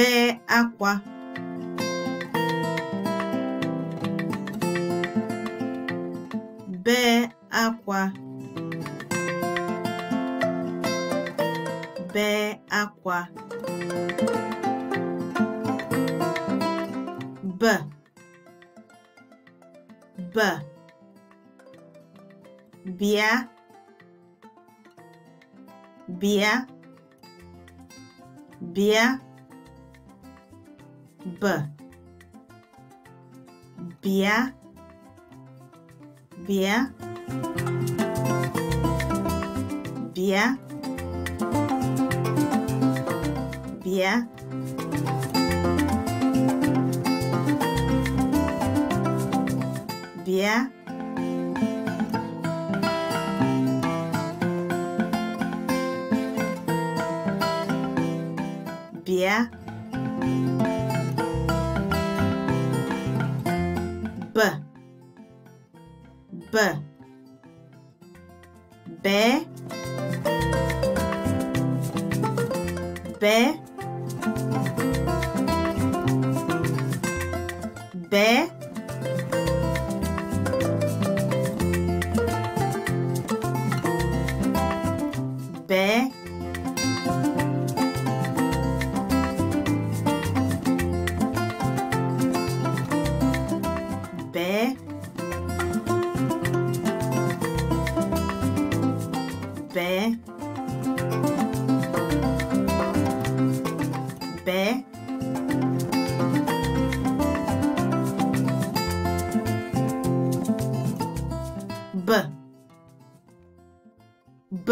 bee akwa bee akwa bee akwa b b bịa bịa bịa б бе бе бе бе бе бе b b B. B. B. B. B.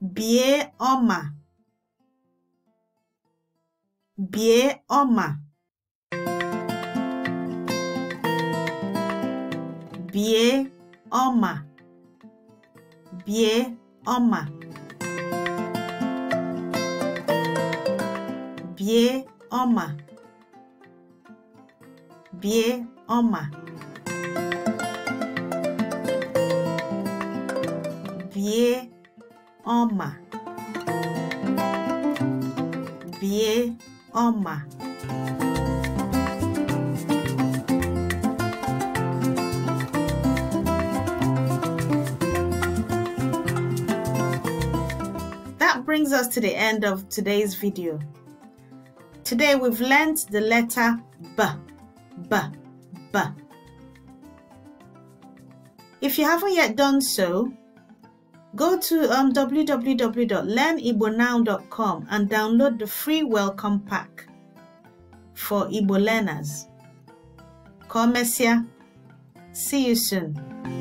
Bie oma. Bie oma. Bie oma. Bie oma. Bie oma. Bie oma. ọma bie ọma That brings us to the end of today's video. Today we've learnt the letter B, B, B. If you haven't yet done so, Go to um, www.learnibonow.com and download the free welcome pack for Ibo learners. Messia. See you soon.